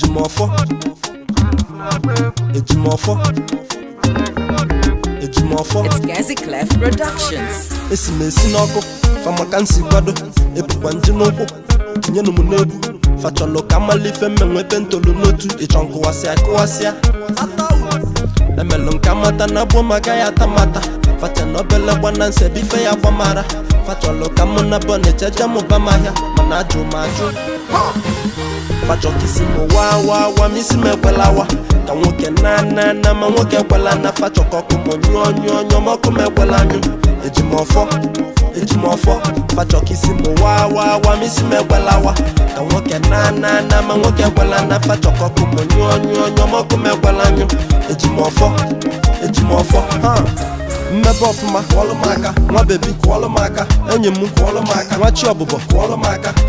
Eji mwafo, eji mwafo, eji mwafo Eji mwafo, eji mwafo, eji mwafo Fama kan si wado, e pou kwanji nou po Kinye nou mwone pou, facholokan mali fe men wepen tolouno tou E chan kowase a kowase a, atawo se Le melon kamata nan bomagaya tamata Fache nobele wanan se bife ya wamara Facholokan mwona bon e che jamo bamaya na ajụ m ajụ fachọkisi m wa wa wa ka nwoke na na na ma nwoke ekwela na fachọkọ ọkụ m nyụọ nyụọ nyụọ ma ọkụ m ekwela anyụ eji m ọfọ eji ka nwoke na na na ma nwoke ekwela na fachọkọ ọkụ m nyụọ nyụọ nyụọ ma ọkụ mmebe ọfụma kụọlụ m aka nwa bebi kụọlụ m aka enyi m kụọlụ nwa chi ọbụbọ kụọlụ